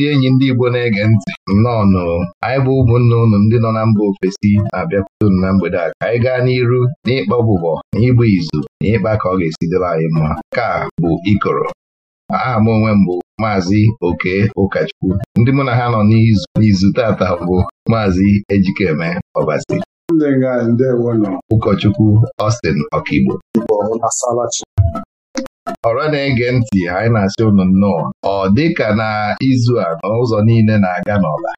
ndị enyi ndị Igbo na-ege ntị nnọọ nụrụ anyị bụ ụmụnne unu ndị nọ na mba ofesi na-abịakwute na mgbede a ka anyị gaa n'iru n'ịkpa ọbụbọ na ịgba izu na ịkpa ka ọ ga-esi debe anyị mma ka bụ ikoro aha m onwe mbụ Maazi maazị oke ụkọchukwu ndị mụ na ha nọ n'izu tata bụ maazị ejikeme ọbazi ụkọchukwu Ọstin Ọkigbo ọrụ na-ege ntị anyị na-asị ụnụ nnọọ ọ dịka na izu a n'ụzọ niile na-aga n'ọla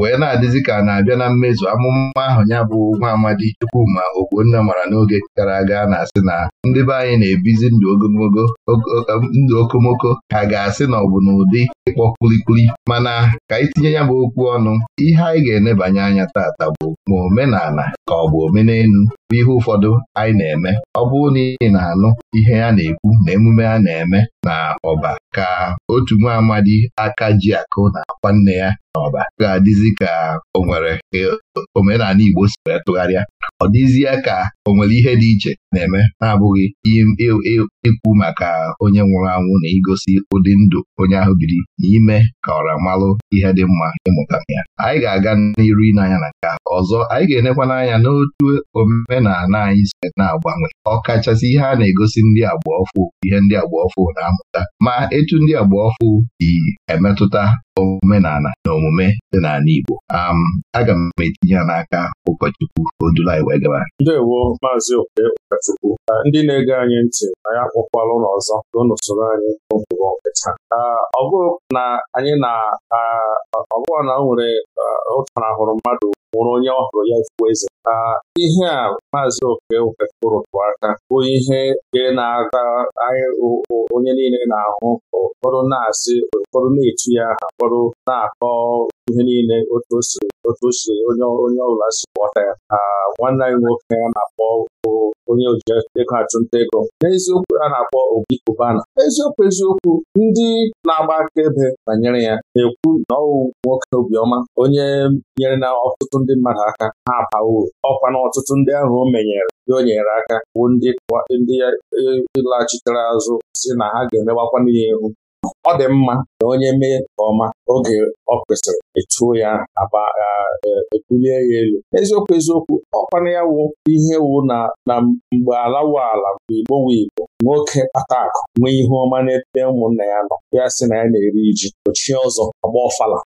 wee na-adịzi ka na-abịa na mmezu amụma ahụ ya bụ nwa amadi Chukwuma nne mara n'oge gara aga na-asị na ndị be anyị na-ebizi ndụ ndụ okomoko ha ga-asị na ọ bụ n'ụdị ịkpọ kpulikpuli mana ka itinye ya bụ okwu ọnụ ihe anyị ga-enebanye anya tata bụ ma omenala ka ọ bụ omenelu bụ ihe ụfọdụ anyị na-eme ọ bụrụ na ị na-anụ ihe a na-ekwu na emume a na-eme na ọba ka otu nwa amadi aka ji akụ na-akwa nne ya na ọba ga-adịzi ka o nwere omenala Igbo si wee tụgharịa ọ dịzie ka o nwere ihe dị iche na-eme na-abụghị e, e, ikwu maka onye nwụrụ anwụ na igosi ụdị ndụ onye ahụ biri n'ime ka ọra malụ ihe dị mma ịmụta ya anyị ga-aga n'iru ịnanya na nke ọzọ anyị ga-enekwa n'anya n'otu omenala anyị si na-agbanwe ọkachasị ihe a na-egosi ndị agbaọfụ ihe ndị agbaọfụ na-amụta ma etu ndị agbaọfụ ọfụ dị emetụta omenala na omume dị n'ala Igbo um, aga m etinye ya n'aka ụkọchukwu odulanyị wee gaba ndewo maazị okpe ụkọchukwu ndị na-ege anyị ntị anyị akpọkwala ụlọ ọzọ n'ụsoro anyị n'ụkpụrụ taa ọ bụrụ na anyị na ọ na o nwere ụtarahụrụ uh, mmadụ nwụrụ onye ọhụrụ ya ifuo eze ihe a maazị oke wefụrụ aka bụ ihe na-aga onye niile na-ahụ ụfọdụ na-asị ụfọdụ na-etu ya aha ụfọdụ na-akọ ihe niile otu otu si onye ọbụla si ghọta ya nwanne anyị nwoke a na-akpọ onye ego achụnta ego n'eziokwu a na-akpọ Obi Kubana, eziokwu eziokwu ndị na-agba akaebe banyere ya na-ekwu na ọwụ nwoke obiọma onye nyere na ọtụtụ ndị mmadụ aka ha abawo ọkwa na ọtụtụ ndị ahụ o menyere o nyere aka bụ ndị e, e laghachitere azụ si na ha ga-emewakwana ya ihu ọ dị mma na onye mee nke ọma oge ọ kwesịrị echuo ya aba ebulie ya elu eziokwu eziokwu ọkwana ya wụ ihe wụ na mgbe ala wụ ala mgbe igbo wụ igbo nwoke kpata nwee ihe ọma n'ebe ụmụnna ya nọ ya sị na ya na-eri ji ochie ọzọ agba ọfala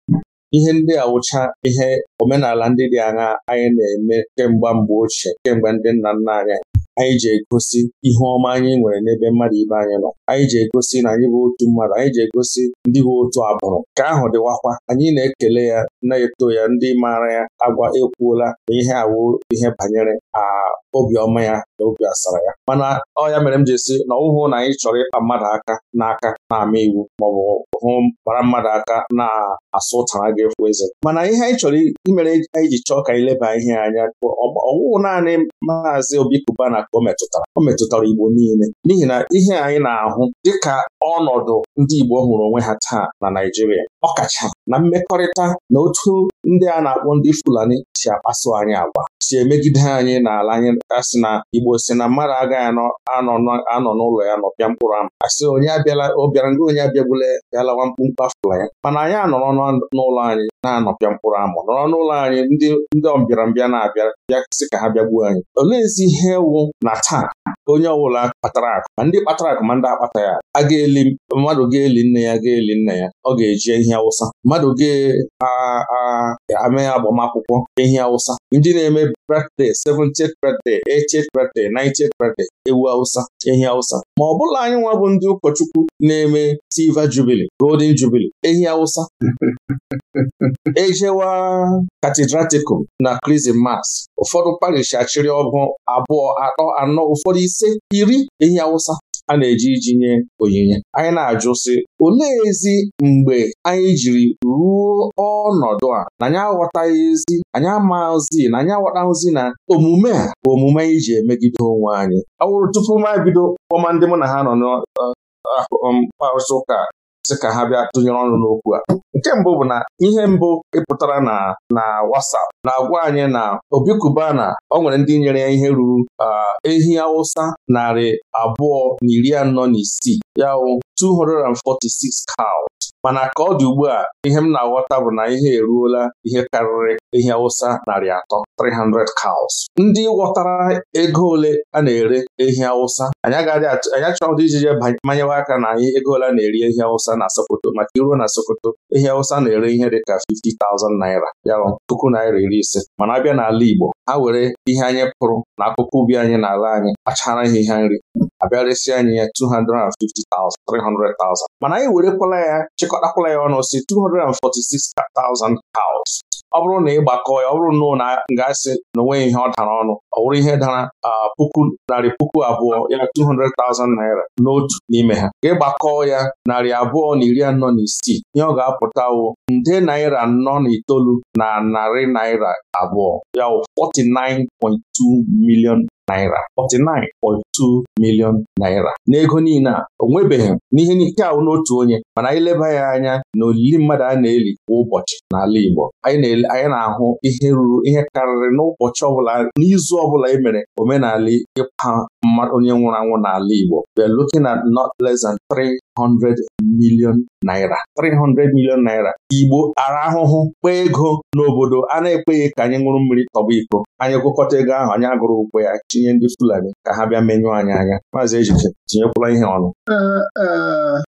ihe ndị awụcha ihe omenala ndị dị aṅa anyị na-eme kemgbe mgbe ochie kemgbe ndị nna nna anyị anyị ji egosi ihe ọma anyị nwere n'ebe mmadụ ibe anyị nọ anyị ji egosi na anyị bụ otu mmadụ anyị ji egosi ndị bụ otu agbụrụ ka ahụ dịwakwa anyị na-ekele ya na-eto ya ndị maara ya agwa ekwuola awụ ihe banyere obiọma ya na obi asara ya mana ọ ya mere m ji esi na ọwụhụ na anyị chọrọ ịkpa mmadụ aka n'aka na-ama iwu maọbụ hụ gbara mmadụ aka na-asụ ụtara gị fụ eze mana ihe anyị chọrọ imere anyị ji chọọ ka anyị leba ihe anya ọwụwụ naanị maazị obi Kubana ka o metụtara o metụtara Igbo niile n'ihi na ihe anyị na-ahụ dịka ọnọdụ ndị Igbo hụrụ onwe ha taa na Naịjirịa ọkacha na mmekọrịta na otu ndị a na-akpọ ndị Fulani si akpaso anyị agwa si emegide anyị n'ala anyị a sị na Igbo si na mmadụ agaghị anọ n'ụlọ ya nọpịa mkpụrụ ama asị onye abịala ọ bịara nga onye abịagbule bịalawa mkpụmkpụ afụla ya mana anyị anọrọ n'ụlọ anyị na-anọpịa mkpụrụ ama nọrọ n'ụlọ anyị ndị ọmbịarambịa na-abịa bịa ka ha bịagbuo anyị Olee oleezi ihe wụ na taa onye ọbụla kpatara akụ ma ndị kpatara akụ ma ndị akpata ya a ga-eli mmadụ ga-eli nne ya ga-eli nna ya ọ ga-eji ehi awụsa mmadụ ga-ame agbamakwụkwọ ehi awụsa ndị na-eme birthday 70th birthday 80th birthday ewu awụsa ehi awụsa ma ọ bụla anyị nwa bụ ndị ụkọchukwu na-eme silver jubilee golden jubilee ehi awụsa ejewa katedratikum na krismas ụfọdụ parish achịrị ọgụ abụọ atọ anọ ụfọdụ ise iri ehi awụsa a na-eji iji nye onyinye anyị na-ajụ sị olee ezi mgbe anyị jiri ruo ọnọdụ a na anyị aghọtaghị ezi anyị amaghịzi na anyị aghọtaghịzi na omume a bụ omume anyị ji emegide onwe anyị ọ wụrụ tupu m bido ọma ndị mụ na ha nọ n'ọkparụsị um, ụka sị ka ha bịa tụnyere ọnụ n'okwu a nke mbụ bụ na ihe mbụ ịpụtara na na WhatsApp na-agwa anyị na Obi Kubana ọ nwere ndị nyere ya ihe ruru ehi Hausa narị abụọ na iri anọ na isii ya wụ 246 cow mana ka ọ dị ugbu a ihe m na-aghọta bụ na ihe eruola ihe karịrị ihe awụsa narị atọ 300 cows ndị ghọtara ego ole a na-ere ehi awụsa anyị achọghị ijije manyewe aka na anyị ego ole a na-eri ehi awụsa na Sokoto maka iruo na Sokoto ehi awụsa na-ere ihe dị ka 50,000 naira ya puku naira iri ise mana abịa n'ala Igbo ha were ihe anyị pụrụ na akụkụ ubi anyị n'ala anyị kpachara ha ihe nri abịaresi anyị ya 250,000 mana anyị werekwala ya chịkọtakwala ya ọnụ si 246,000 cows ọ bụrụ na ị gbakọọ ya ọ bụrụ na ga-asị na onweghị ihe ọ dara ọnụ ọ bụrụ ihe dara puku narị puku abụọ ya 200,000 naira n'otu n'ime ha ka ịgbakọọ ya narị abụọ na iri anọ na isii ihe ọ ga-apụta wụ nde naira anọ na itoolu na narị naira abụọ ya 49.2 milion naira 49.2 million naira n'ego niile a onwebeghị nwebeghị n'ihe nke ahụ n'otu onye mana anyị leba ya anya na olili mmadụ a na-eli kwa ụbọchị n'ala Igbo anyị na-ahụ ihe ruru ihe karịrị n'ụbọchị ọbụla n'izu ọbụla e mere omenala ịkwa onye nwụrụ anwụ n'ala Igbo we are looking at not less than 300 million naira 300 million naira Igbo ara ahụhụ kpee ego n'obodo a na-ekweghị ka anyị nwụrụ mmiri tọba iko anyị gụkọta ego ahụ anyị agụrụ ụgwọ ya tinye ndị Fulani ka ha bịa menyụọ anyị anya maazị Ejike tinyekwala ihe ọnụ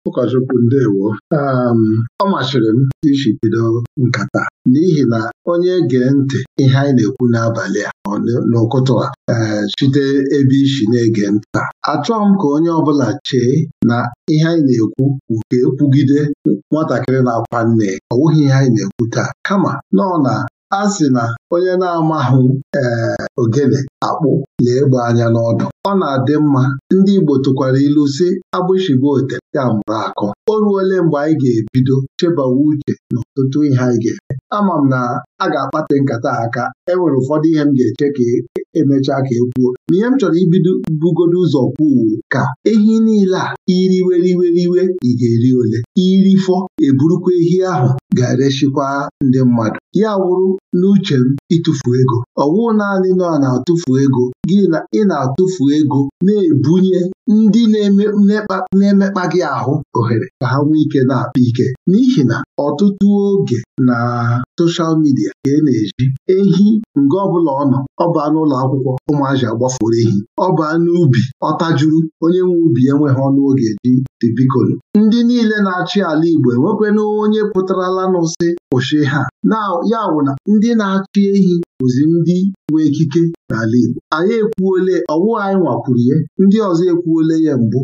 ụkọchukwu ndewo ọ masịrị m iji bido nkata n'ihi na onye gee ntị ihe anyị na-ekwu n'abalị a n'ụkụtụ a site ebe isi na-ege nta achọghị m ka onye ọbụla chee na ihe anyị na-ekwu nke ekwugide nwatakịrị na-akwa nne ọ wụghị ihe anyị na-ekwu taa kama nọ na A sị na onye na-amahụ ee eh, ogene akpụ lee egbe anya n'ọdụ ọ na-adị mma ndị Igbo tụkwara ilu sị agbụshị ba ya mụrụ akọ o ruole mgbe anyị ga-ebido chebawa uche n'ọtụtụ ihe anyị ga-eme ama m na a ga akpata nkata aka enwere ụfọdụ ihe m ga-eche ka emechaa e ka e kwuo ma ihe m chọrọ ibido bugodo ụzọ kwuo ka ehi niile a iriweriweriwe ị ga-eri ole irifọ eburukwa ehi ahụ ga-erechikwa ndị mmadụ ya wụrụ n'uche m ịtụfu ego ọwụ naanị nọ na-atụfu ego gị na ị na-atụfu ego na-ebunye ndị na-emekpa gị ahụ ohere ka ha nwee ike na-akpa ike n'ihi na ọtụtụ oge na soshal midia ka e na-eji ehi nga ọbụla ọ nọ ọ n'ụlọ akwụkwọ ụmụazị agbafuru ehi ọ baa n'ubi ọ tajuru onye nwe ubi enweghị ọnụ oge eji ndị niile na-achị ala Igbo enwekwana onye pụtarala nụ sị ha ya wụ na ndị na-achị ehi Ozi ndị nwe ekike n'ala Igbo anyị ekwuole ọwụwa anyị nwakwuru ya ndị ọzọ ekwuole ya mbụ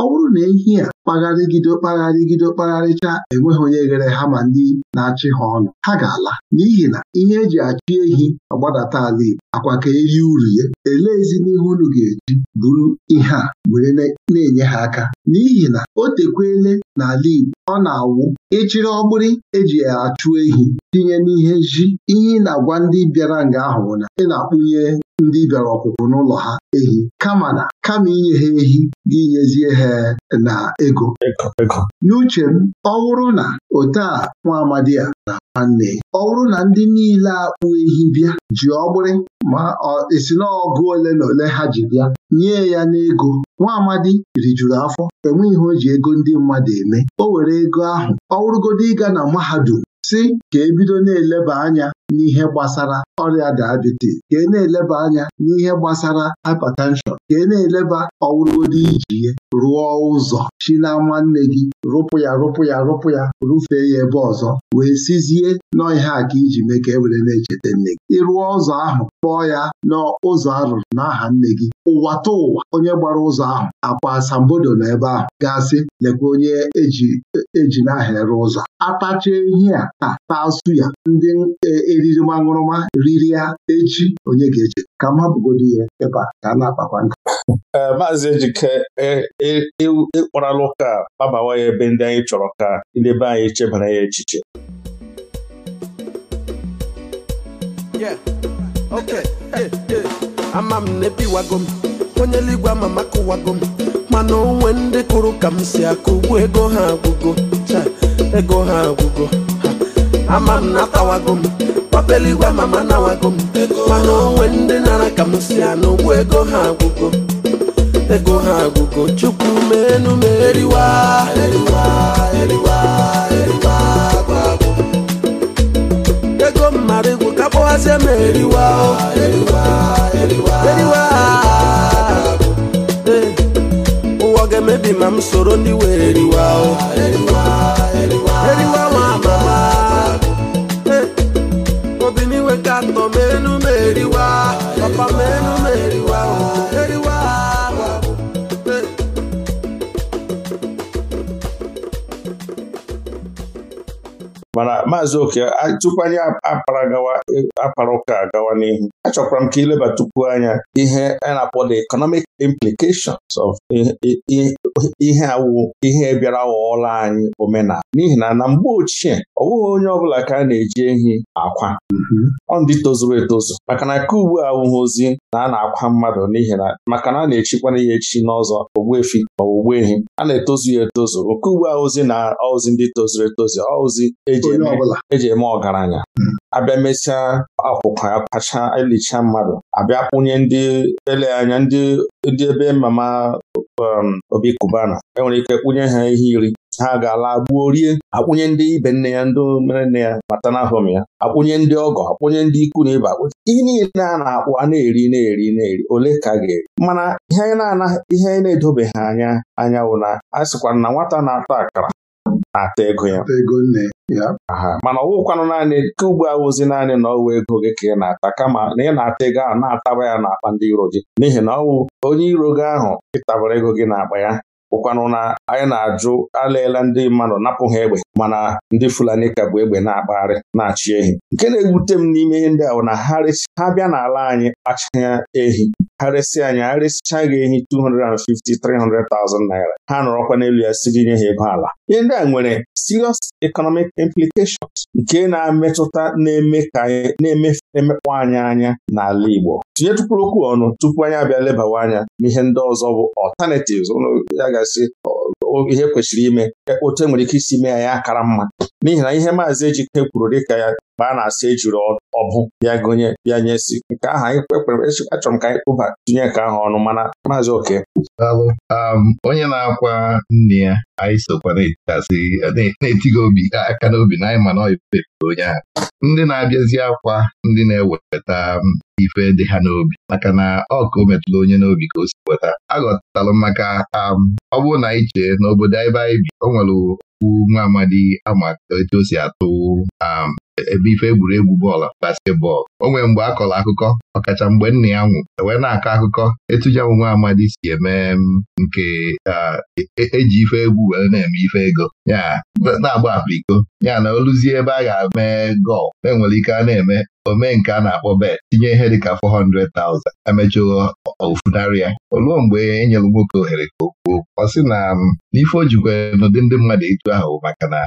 ọ bụrụ na ehi a kpagharịgido kpagharịgido kpagharịcha enweghị onye ghere ha ma ndị na-achị ha ọnụ ha ga-ala n'ihi na ihe eji achị ehi agbadata ala Igbo akwa ka eri uru ya elee ezinihu unu ga-eji bụrụ ihe a were na-enye ha aka n'ihi na o tekwele n'ala Igbo ọ na-awụ ịchịrị ọgbụrị eji achụ ehi tinye n'ihe ji ihe ị na-agwa ndị bịara nga ahụ na ị na-akpụnye ndị bịara ọkụkụ n'ụlọ ha ehi kama na kama inye ha ehi inyezie ha na ego n'uche m ọ bụrụ na ote a nwa amadi a na nwanne ọ bụrụ na ndị niile akpụ ehi bịa ji ọgbụrị ma esi na ọgụ ole na ole ha ji bịa nye ya n'ego nwa amadi rijuru afọ enwe ihe o ji ego ndị mmadụ eme o were ego ahụ ọ wụrụgodo ịga na mahadum sị ka ebido bido na-eleba anya n'ihe gbasara ọrịa dayabitis ka e na-eleba anya n'ihe gbasara hypertenshọn ka e na-eleba ọwụrụgodị iji rụọ ụzọ chi na nwanne gị rụpụ ya rụpụ ya rụpụ ya rụfee ya ebe ọzọ wee sizie ihe a ka iji mee ka e were na-echeta nne gị ịrụọ ụzọ ahụ kpọọ ya n'ụzọ arụrụ n'aha nne gị ụwa ta ụwa onye gbara ụzọ ahụ akwa asambodo na ebe ahụ gasị lekwa onye eji nahịa e n'aha ere ụzọ atacha ehi a ta taa ya ndị e, eriri nwa riri ya echi onye ga-eche ka mma bụgodi ya ebe ka a na-akpakwa nkata maazị Ejike ịkparala e, e, e, ụka kpabawa ya ebe ndị anyị chọrọ ka ndị anyị chebara ya echiche ama m na ebiwago m onye eluigwe ama m akụwago m mana onwe ndị kụrụ ka m si akụ ugbu ego ha agwụgo ego ha agwụgo ama m natawago m papeligwe mama nawago m mana onwe ndị nara ka m si anụ ụgwọ ego ha agwụgo ego ha agwụgo chukwu menu m eriwa eriwa eriwa eriwa gwagwụ ego mmadụ igwu ka kpọghazie m eriwa eriwa eriwa eriwa ụwa ga-emebi ma m soro ndị wee eriwa eriwa maazị oke tupu anyị apara gawa apara ụka gawa n'ihu achọkwara m ka ileba tupu anya ihe a na-akpọ the economic implications of ihe awụ ihe bịara ghọọla anyị omenala n'ihi na na mgbe ochie ọ bụghị onye ọbụla ka a na-eji ehi akwa mm-hmm. ọ ndị tozuru etozu maka na ka ugbu awụghị ozi na a na-akwa mmadụ n'ihi na maka na a na-echikwana ya echi n'ọzọ ogbuefi ma ogbu ehi a na-etozu ya etozu nke ugbu ozi na ozi ndị tozuru etozu ozi eji e eme ọgaranya mm-hmm. abịa mesịa akwụkwa ya pacha elicha mmadụ abịa kwụnye ndị ele anya ndị ndị ebe mama um, obi kubana enwere ike kwụnye ha ihe iri ha ga-ala gbuo rie akwụnye ndị ibe nne ya ndị mere nne ya mata n'ahụm ya akwụnye ndị ọgọ akwụnye ndị ikwu na ịba ihe niile a na akpụ a na-eri na-eri na-eri ole ka ga-eri mana ihe anyị na-edobeghị anya anyanwụ na a sịkwa na nwata na-ata akara na-ata ego ya ego nne ya mana ọwụkwanụ naanị ka ugbu awụzi naanị na ọwụ ego gị ka ị na-ata kama na ị na-ata ego ahụ na-ataba ya n'akpa ndị iro gị n'ihi na ọwụ onye iro gị ahụ ịtabara ego gị n'akpa ya bụkwanụ na anyị na-ajụ alaela ndị mmadụ napụ ha egbe mana ndị Fulani ka bụ egbe na-akpagharị na-achị ehi nke na-ewute m n'ime ihe ndị ahụ na ha bịa n'ala anyị kpachaa ehi ha resi anyị ha resichaa gị ehi 250-300,000 naira ha nọrọkwa n'elu ya siri nye ha ego ala ihe ndị a nwere serious economic implications nke na-emetụta na-eme ka anyị na-emekpọ anyị anya n'ala Igbo tinyetukwuru okwu ọnụ tupu anyị abịa lebawa anya n'ihe ndị ọzọ bụ alternatives ụlọ ya gasị ihe e kwesịrị ime e, otu enwere ike isi mee ya akara mma n'ihi na ihe maazị Ejike kwuru dịka ya mgbe a na-asị ejuru ọbụ bịa gụnye bịa si, nke ahụ anyị kwekwere achọrọ m ka anyị kpụba tinye nke ahụ ọnụ mana maazị oke um, onye na-akwa nne ya anyị sokwa na-etighị obi aka n'obi na anyị mana ọyịpe onye ahụ ndị na-abịazi akwa ndị na-eweta um, ife dị ha n'obi maka na ọ ka o metụrụ onye n'obi ka o si weta aghọtalụ maka um, ọ bụrụ na anyị chee n'obodo ebe anyị bi o nwere okwu nwa amadi ama etu o si atụ ebe ife egwuregwu bọọlụ basketbọọlụ o nwere mgbe a kọrọ akụkọ ọkacha mgbe nna ya nwụ e wee na-akọ akụkọ etuja m nwa amadi si eme mm, nke eji e ife egwu were na-eme ife ego ya na-agba apụ iko ya na oluzie ebe a ga-eme gọl enwere ike a na-eme omee nke a na-akpọ bet tinye ihe dịka 400,000 emechụo ofunarị ya oluo mgbe e nyere nwoke ohere ka o ọ sị na n'ife ojikwa n'ụdị ndị mmadụ etu ahụ maka na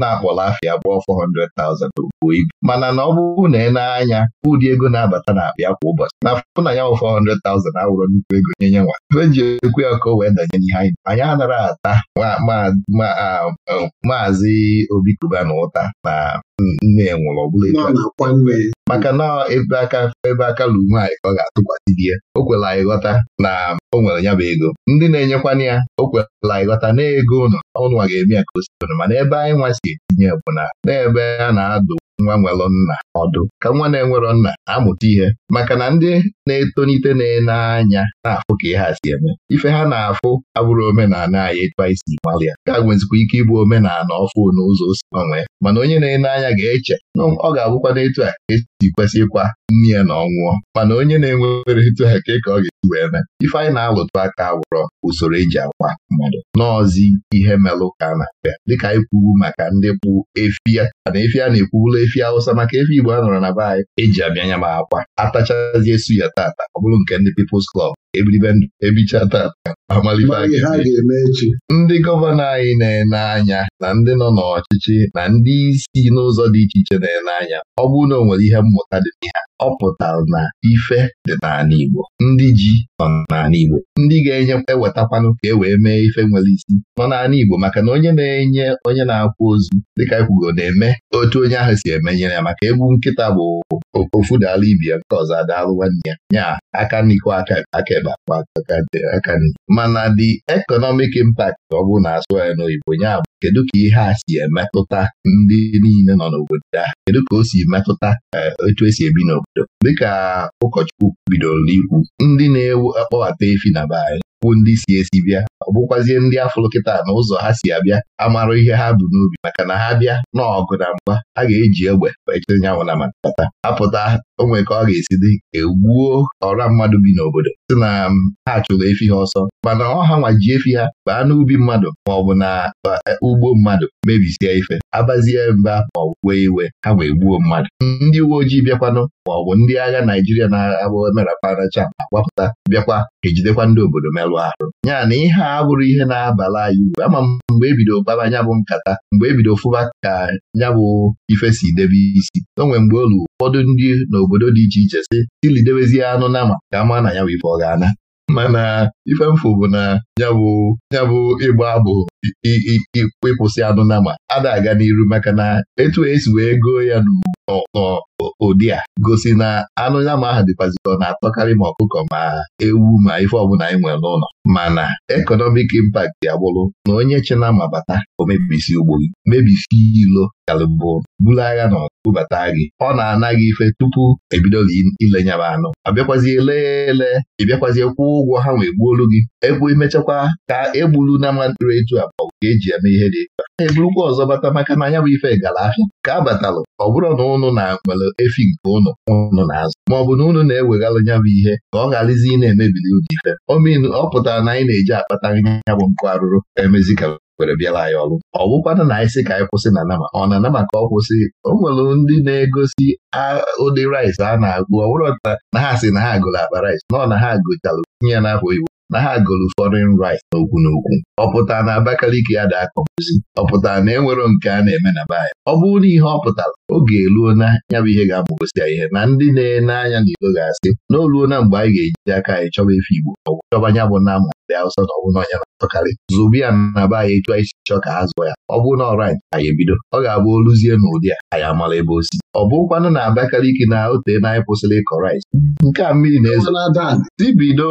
na-akpọla afịa gbụọ 400,000 buo ibu mana na ọ bụrụ na ị e na-anya ụdị ego na-abata na akpa kwa ụbọchị na afụ na ya wụ 400,000 awụrụ nnukwu ego nye nye nwa ife ji ekwu ya ka o wee danye n'ihe anyị anyị anara ata um, maazị Obi na ụta na nne ya nwụrụ ọ maka na ebe aka ebe aka lume anyị ka ọ ga-atụkwasị di ya o kwela anyị ghọta na o nwere ya bụ ego ndị na-enyekwana ya o kwela anyị ghọta na ego ụlọ ọnụnwa ga-eme ya ka o si mana ebe anyị nwa si etinye bụ na n'ebe a na-adụ nwa nwelụ nna ọdụ ka nwa na-enwerọ nna amụta ihe maka na ndị na-etonite na-ene anya na-afụ ka ihe a si eme ife ha na-afụ abụrụ omenala anyị etu isi si gbalịa ga-agwezikwa ike ịbụ omenala ọfụ n'ụzọ o si gbanwee mana onye na-ene anya ga-eche na ọ ga-abụkwa n'etu a esi kwesịkwa nne ya na ọnwụọ mana onye na-enwere etu a ka ka ọ ga wee mee ife anyị na-alụtụ aka awụrọ usoro eji agwa mmadụ n'ọzi ihe melụ ka a na-abịa dịka anyị kwuru maka ndị kpụ efi ya na efi a na-ekwubula efi awụsa maka efi Igbo a nọrọ na be anyị eji abịa nya ma akwa atachazie esu ya tata ọ bụrụ nke ndị People's klọb ebilibe ndụ ebicha tata amalife ndị gọvanọ anyị na-ene anya na ndị nọ n'ọchịchị na ndị isi n'ụzọ dị iche iche na-ele anya ọ bụrụ na o nwere ihe mmụta dị n'ihe ọ pụtara na ife dị n'ala Igbo ndị ji nọ n'ala Igbo ndị ga-enye ewetakwanụ ka e wee mee ife nwere isi nọ n'ala Igbo maka na onye na-enye onye na akwụ ozu dịka ekwugo na-eme otu onye ahụ si emenyere ya maka egbu nkịta bụ ofu dala ibia nke ọzọ adaalụ nwanne ya nya aka n'iko aka akaebe akpa aka nri mana the economic impact ọ bụrụ na asụ ya n'oyibo nya kedu ka ihe a si emetụta ndị niile nọ n'obodo a kedu ka o si metụta otu eh, esi ebi n'obodo dịka ụkọchukwu bidoro n'ikwu, ndị na-ewu akpọbata efi na be anyị bụ ndị si esi bịa ọ bụkwazie ndị afụlụ kịta na ụzọ ha si abịa amarụ ihe ha bụ n'ubi maka na ha bịa n'ọgụ na mgba ha ga-eji egbe echeanyanwụ na matata apụta onwe ka ọ ga-esi dị egbuo ọra mmadụ bi n'obodo si na ha chụrụ efi ha ọsọ mana ọha ha ji efi ha baa n'ubi mmadụ maọbụ na e, ugbo mmadụ mebisie ife abazie mba maọbụ wee iwe ha wee gbuo mmadụ ndị uwe ojii bịakwanụ maọbụ ndị agha Naijiria na-abụ meraparacha agbapụta bịakwa ejidekwa ndị obodo merụ arụ arụ ya na ihe a bụrụ ihe na-abala anyị uru ama m mgbe ebido kpaba nya bụ nkata mgbe ebido fụba ka nya bụ ife si debe isi o mgbe olu ụfọdụ ndị n'obodo dị iche iche si tilidebezie anụ nama ka ama na ya bụ ife ọ ga-ana mana ife mfụ bụ na yabụ ịgba abụ ịkwụsị anụ nama ada aga n'iru maka na etu esi wee goo ya n'ugwu ụdị a gosi na anụ ya ma aha dịkwazikọ na-atọkarị ma ọkụkọ ma ewu ma ife ọbụla anyị e nwere n'ụlọ mana ekọnọmik impact ya na onye chena mabata o mebisi ugbo gị mebisi ilo kalịbụ buru agha na ọbụbata gị ọ na-ana gị ife tupu ebidola ilenyaba anụ abịakwazi ele ele ịbịakwazi e kwụọ ụgwọ ha wee gbuolu gị egbu emechakwa ka egburu na ama ntụrụ etu abụọ ka eji eme ihe dị egba a eburukwa ọzọ bata maka na anya bụ ife gara ahịa ka a batalụ ọ bụrụ na ụnụ na nwere efi nke ụnụ ụnụ na-azụ bụ na unu na-eweghalụ ya bụ ihe ka ọ gharazi ị na-emebili ụdị ife omenu ọ pụtara na anyị na-eji akpata ya bụ mkpụ arụrụ emezi ka were bịara anyị ọrụ ọ bụkwana na anyị sị ka anyị kwụsị na nama ọ na anama ka ọ kwụsị o nwere ndị na-egosi ụdị rice a na-agụ ọ bụrụ na ha sị na ha gụrụ akpa rice nọ na ha gụchalụ tinye ya n'afọ oyibo na ha gụrụ foreign right okwu n'okwu ọ pụtara na Abakaliki ya da akọpụzi ọ pụtara na e nwero nke a na-eme na be anyị ọ bụrụ na ihe ọ pụtara oge eluo na ya bụ ihe ga-amụgosi ya ihe na ndị na-ene anya na Igbo ga-asị na na mgbe anyị ga-ejide aka anyị chọba efe Igbo ọ chọba ya bụ na amụ ndị Hausa na ọ bụrụ na ọnya na-atọkarị ya na be anyị etu anyị si chọọ ka ha zụọ ya ọ bụrụ na ọ right anyị ebido ọ ga-abụ oluzie n'ụdị a anyị amala ebe osi si ọ bụrụkwanụ na Abakaliki na otee na anyị kwụsịrị ịkọ rice nke a mmiri na-ezo tibido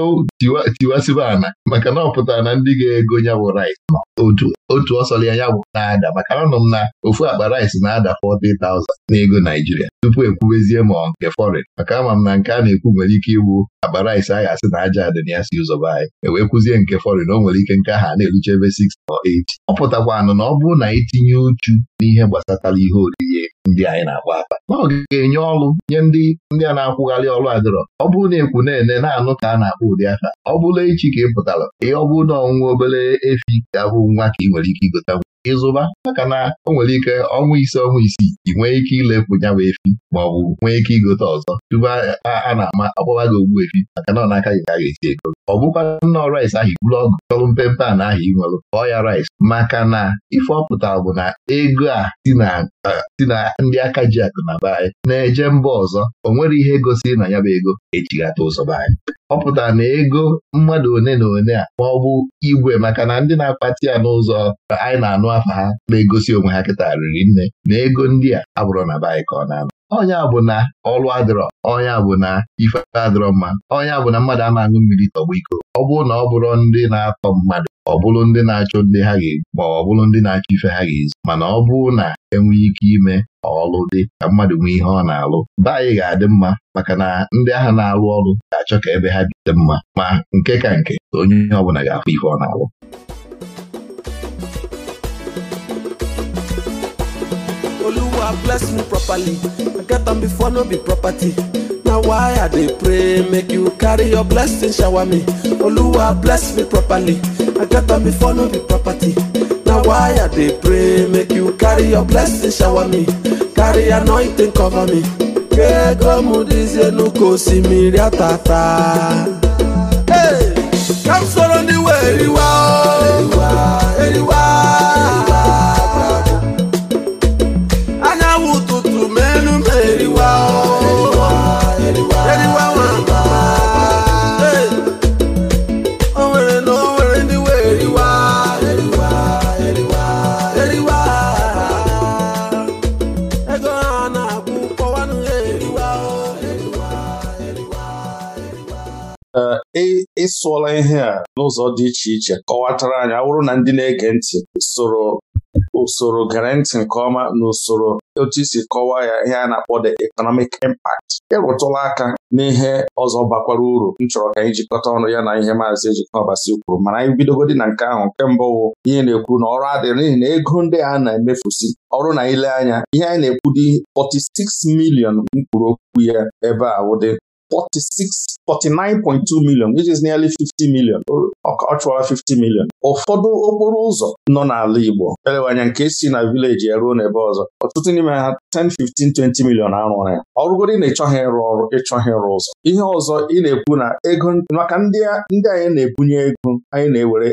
tiwasịba ana maka na ọ pụtara na ndị ga-ego nya bụ rice otu otu ya ya bụ na-ada maka nọ m na ofu akpa rice na-ada 40,000 n'ego Naijiria tupu ekwubezie ma nke foreign maka ama m na nke a na-ekwu nwere ike igbu akpa rice a ga-asị na aja adị na ya si ụzọba anyị wee kwụzie nke forin o nwere ike nke aha na-erucha ebe 6 or 8 ọ anụ na ọ bụrụ na itinye uchu n'ihe gbasatara ihe oriri ndị anyị na-akpa akpa na ọ ga-enye ọrụ nye ndị ndị a na-akwụgharị ọrụ adịrọ ọ bụrụ na ekwu na-ene na-anụ ka a na-akpọ ụdị aka ọ bụla echi ka ị pụtara ihe ọ na ọnwụ obere efi ga-abụ nwa ka ị nwere ike igota ịzụba maka na o nwere ike ọnwa ise ọnwa isii ị nwee ike ilepụ nyawa efi ma ọ bụ nwee ike igote ọzọ tupu a na-ama akpọwa gị ogbu efi maka na ọ n'aka gị ka a ga-esi ego ọ bụkwa rice ahụ ọgụ ọgụọrụ mpempe a na ahụ inwelụ kpọọ ya rice maka na ife ọ pụtara bụ na ego a si na ndị aka ji akụ na be anyị na-eje mba ọzọ o nwere ihe gosiri na ya bụ ego ejighata ụzọ be anyị ọ pụtara na ego mmadụ one na one a ma ọ bụ igwe maka na ndị na-akpati ya n'ụzọ anyị na-anụ afa ha na-egosi onwe ha kịta riri nne na ego ndị a abụrụ na be anyị ka ọ na-anọ onye bụ na ọlụ adịrọ onya bụ na ife adịrọ mma onye bụ na mmadụ ama aṅụ mmiri tọgba iko ọ bụrụ na ọ bụrụ ndị na-atọ mmadụ ọ bụrụ ndị na-achọ ndị ha ga-ebu ma ọ bụrụ ndị na-achọ ife ha ga ezi mana ọ bụrụ na enwee ike ime ọlụ dị ka mmadụ nwee ihe ọ na-alụ be anyị ga-adị mma maka na ndị agha na-alụ ọrụ ga-achọ ka ebe ha dị mma ma nke ka nke onye onye ọ bụla ga-afụ ife ọ na-alụ oluwa bless me properly i get am before no be property na why i dey pray make you carry your blessing shower me oluwa bless me properly i get am before no be property na why i dey pray make you carry your blessing shower me carry anointing cover me kego mudizienu ko simiri atata. Hey, come soro ndị were iwe ahụ. ịsụọla ihe a n'ụzọ dị iche iche kọwatara anyị awụrụ na ndị na-ege ntị soro usoro gere ntị nke ọma na usoro otu isi kọwaa ya ihe a na-akpọ the economic impact ịrụtụla e aka n'ihe ọzọ bakwara uru m chọrọ ka anyị jikọta ọnụ ya na ihe maazị Ejikwa Ọbasi kwuru mana anyị bidogodi na nke ahụ nke mbụ wụ ihe na-ekwu na ọrụ adịrị n'ihi na ego ndị a na-emefusi ọrụ na ile anya ihe anyị na-ekwu dị 46 million mkpụrụ okwu ya ebe a wụdị 46492 49.2 million which is nearly 50 million ọ 50 million ụfọdụ okporo ụzọ nọ n'ala Igbo elewanya nke si na vileji ya n'ebe ọzọ ọtụtụ n'ime ha 10 15 20 million arụrụ ya ọrụgoro na ịchọghị ịrụ ọrụ ịchọghị ịrụ ụzọ ihe ọzọ ị na-ekwu na ego maka ndị anyị na-ebunye ego anyị na-ewere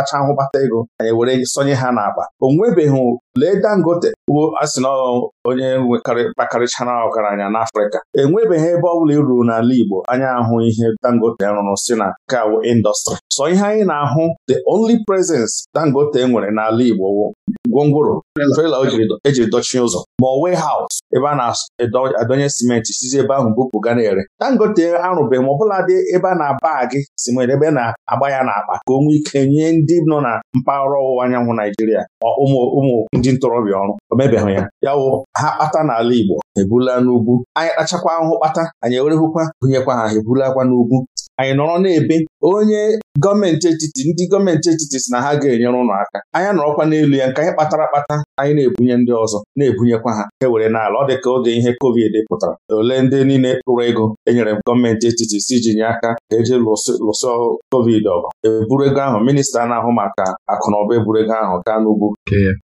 acha ahụbata ego anyị were sonye ha n'akpa o nwebeghị lee Dangote asị na onye nwekarịkpakarịchara ọgaranya n'Afrịka enwebeghị ebe ọ bụla e ruru n'ala Igbo anya ahụ ihe Dangote rụrụ si na kawo indọstrị sọ ihe anyị na-ahụ the only presence Dangote nwere n'ala Igbo gwongworo trela ejiri e dochie ụzọ ma haus ebe a na-adọnye simenti sizi ebe ahụ bupụ ga na-ere Dangote arụbeghị ma ọbụla dị ebe a na-aba gị simenti ebe na-agba ya n'akpa ka o nwee ike nye ndị nọ na mpaghara ọwụwa anyanwụ Naijiria ụmụ ndị ntorobịa ọrụ o mebeghị ya ya wụ ha kpata n'ala Igbo ebula n'ugwu anyị kpachakwa ahụhụ kpata anyị ewerehụkwa gụnyekwa ha ebulakwa n'ugwu anyị nọrọ na-ebe onye gọọmenti etiti ndị gọọmenti etiti si na ha ga-enyere ụlọ aka anyị nọrọkwa n'elu ya nke anyị kpatara akpata anyị na-ebunye ndị ọzọ na-ebunyekwa ha e were n'ala ọ dị ka oge ihe covid pụtara ole ndị niile kpụrụ ego enyere gọọmenti etiti si ji nye aka ka eji lụsọ covid ọgụ eburu ego ahụ minista na-ahụ maka akụ na eburu ego ahụ gaa n'ugwu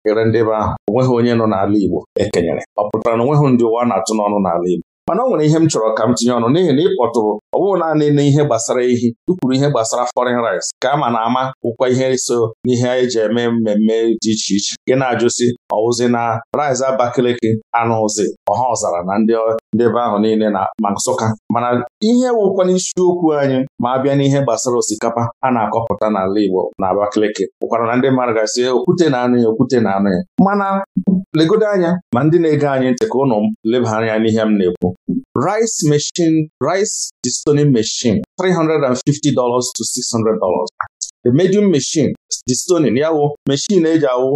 kere ndị be ahụ onweghị onye nọ n'ala Igbo ekenyere ọ pụtara na onweghị ndị ụwa na-atụ n'ọnụ n'ala Igbo mana ọ nwere ihe m chọrọ ka m tinye ọnụ n'ihi na ịkpọtụrụ ọ bụghị naanị ihe gbasara ehi ukwuru ihe gbasara foreign rice ka a ma na ama bụkwa ihe so n'ihe eji eme mmemme dị iche iche gị na-ajụsi ọwụzi na rice Abakaliki anụ ụzi ọha ọzara na ndị ndị ebe ahụ niile na ma Nsụka mana ihe wụkwa n'isiokwu anyị ma abịa n'ihe gbasara osikapa a na-akọpụta n'ala Igbo na Abakaliki ụkwara na ndị mmadụ gasị eh, okwute na-anụ ya okwute na-anụ ya mana legodo anya ma ndị na-ege anyị ntị ka ụnụ leba anya n'ihe m na-ekwu rice machine rice destoning machine $350 to $600 the medium machine dị stonin ya wụ meshin eji awụ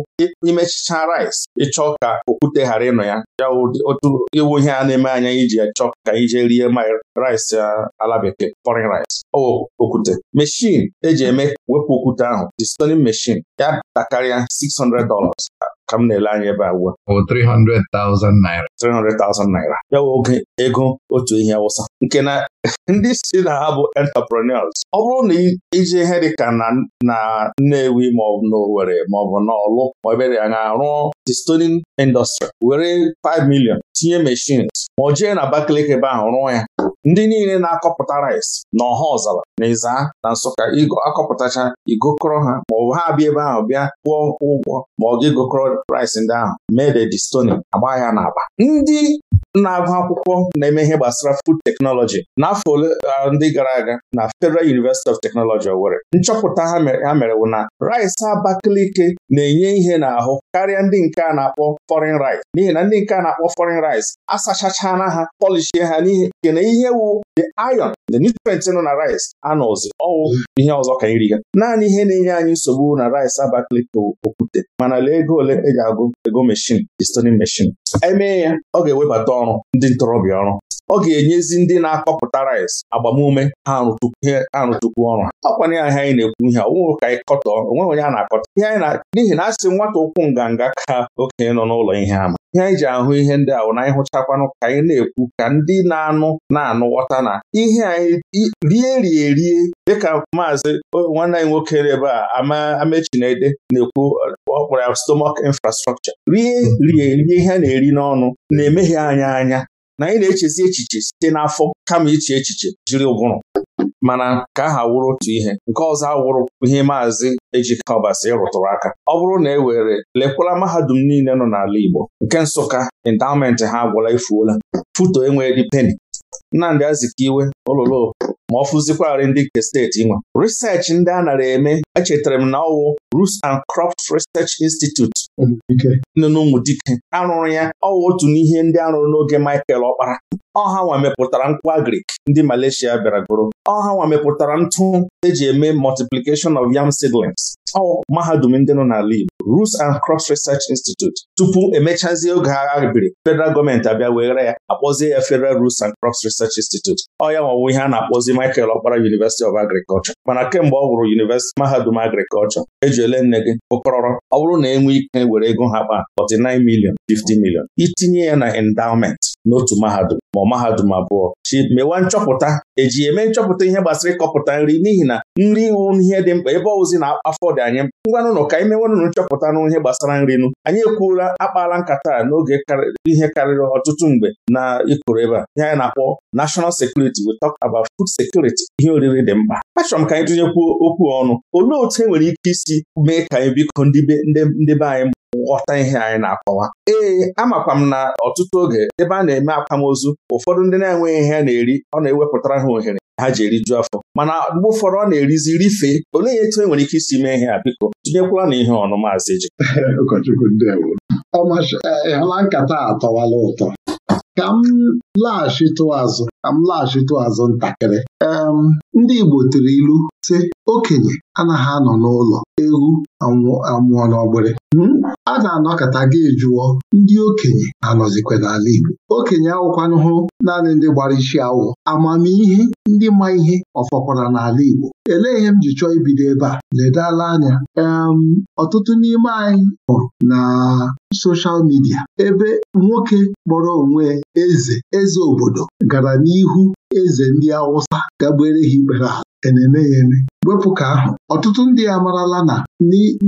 imechicha rice ịchọ ka okwute ghara ịnọ ya ya otu iwu ihe a na-eme anya iji ya chọ ka ije rie ma rice ala bekee foreign rice ọwụ okwute meshin eji eme wepụ okwute ahụ dị stonin meshin ya takarịa 600 dollars ka m na-ele anya ebe a 300,000 naira 300,000 naira ya wụ oge ego otu ihe awụsa nke na ndị si na ha bụ entrepreneurs ọ bụrụ na iji ihe dịka na Nnewi maọbụ N'Olu Owerri maọbụ na Ọlụ ma ebere anya The stoning industry were 5 million tinye machines ma ọ jee na Abakaliki ebe ahụ rụọ ya ndị niile na-akọpụta rice na ọha ọzara na ịza na Nsụka akọpụtacha igokọrọ ha maọbụ ha abịa ebe ahụ bịa kwụọ ụgwọ ma ọ ga-egokọrọ rice ndị ahụ mee the agba ya n'aba ndị na-agụ akwụkwọ na-eme ihe gbasara food teknọlọji n'afọ ole ndị gara aga na Federal University of Technology Owerri nchọpụta ha mere bụ na rice abakalike na-enye ihe n'ahụ karịa ndị nke a na-akpọ foreign rice n'ihi na ndị nke a na-akpọ foreign rice asachachana ha polishie ha n'ihi nke na ihe wu the iron the nutrient nọ na rice anọzi ọwụ ihe ọzọ ka iri ya naanị ihe na-enye anyị nsogbu na rice abakalike okwute mana lee ego ole e agụ ego meshin di stoning meshin emee ya ọ ga-ewebata na-ewebata ọrụ ndị ntorobịa ọrụ ọ ga-enyezi ndị na-akọpụta rice agbamume ha arụtukwu ọrụ ha ọkwanye ya ihe anyị na-ekwu ihe onwe ka anyị onwe onye a na-akọta ihe n'ihi na a sị nwata ụkwụ nganga ka okenye nọ n'ụlọ ihe ama ihe anyị ji ahụ ihe ndị ahụ na anyị hụchakwanụ ka anyị na-ekwu ka ndị na-anụ na-anụ ghọta na ihe anyị rie rie rie dịka maazị nwanne anyị nwoke ebe a ama amechinede na-ekwu ọ kpọrọ ya stomach infrastructure rie rie rie ihe a na-eri n'ọnụ na-emeghe anya anya na anyị na-echezi echiche site n'afọ kama iche echiche jiri ụbụrụ mana ka aha wụrụ otu ihe nke ọzọ awụrụ ihe maazị Ejike Ọbasi rụtụrụ aka ọ bụrụ na e were lekwala mahadum niile nọ n'ala Igbo nke Nsụka endowment ha agwụla ifuola foto enweghị peni Nnamdị Azikiwe ololo ma ọ fụzikwarị ndị nke steeti nwa risechi ndị a nara eme echetara m na ọwụ Roots and Crops Research Institute hm, nọ Dike arụrụ ya ọwụ otu n'ihe ndị arụrụ n'oge Michael Ọkpara ọha nwa mepụtara nkwụ agrik ndị Malaysia bịara goro ọha nwa mepụtara ntụ eji eme multiplication of yam seedlings ọwụ mahadum ndị nọ n'ala Igbo Roots and Crops Research Institute tupu emechazie oge agha biri federal gọọmenti abịa were ya akpọzie ya Federal rus and Crops Research Institute ọ ya nwa ọwụwa ihe a na-akpọzi Michael Okpara University of Agriculture mana kemgbe ọ hụrụ University Mahadum Agriculture eji ole nne gị ụkọrọrọ ọ bụrụ na enwe ike e were ego ha kpa 49 million 50 million itinye ya na endowment n'otu mahadum ma ọ mahadum abụọ chi mewa nchọpụta eji eme nchọpụta ihe gbasara ịkọpụta nri n'ihi na nri iwu ihe dị mkpa ebe ọwụzi na afọ dị anyị ngwanụnụ ka anyị mewenụnụ nchọpụta n ihe gbasara nri nụ anyị ekwuola akpaala nkata n'oge ihe karịrị ọtụtụ mgbe na ịkụrụ ebe a ihe anyị na-akpọ Nashọnal sekuriti we talk about food security ihe oriri dị mkpa achọrọ m ka anyị tụnyekwuo okwu ọnụ olee otu e nwere ike isi mee ka anyị biko ndị be anyị Nghọta ihe anyị na-akọwa ee amakwa m na ọtụtụ oge ebe a na-eme akwamozu ụfọdụ ndị na-enweghị ihe a na-eri ọ na-ewepụtara ha ohere ha ji eriju afọ mana mgbe ụfọdụ ọ na-erizi rifee olee etu e nwere ike isi mee ihe a biko tinyekwala na ihe ọnụ maazị ji ụkọchukwu nkata a ụtọ ka m laghachitụ azụ ka m laghachitụ azụ ntakịrị ndị Igbo tiri ilu sị okenye anaghị anọ n'ụlọ ewu amụọ n'ọgbịrị hmm? a ga-anọkata gị jụọ ndị okenye na-anọzikwa n'ala Igbo okenye awụkwanụhụ naanị ndị gbara isi awọ amamihe ndị ma ihe ọfọkwara n'ala Igbo elee ihe m ji chọọ ibido ebe a ledala anya em um, ọtụtụ n'ime anyị hụrụ na soshal midia ebe nwoke kpọrọ onwe eze eze obodo gara n'ihu eze ndị Awụsa gagbere ha ikpere ala na-eme ya eme wepụ ka ahụ ọtụtụ ndị amarala na